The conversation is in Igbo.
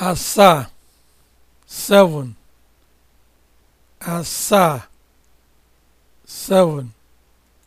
asaa 7